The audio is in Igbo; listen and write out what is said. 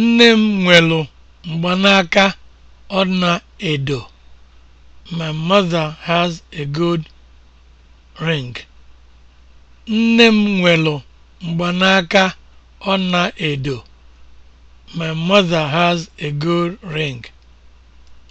Nne m nwelu mgbanaka ona edo. My mother has edo. My mother has a gold ring.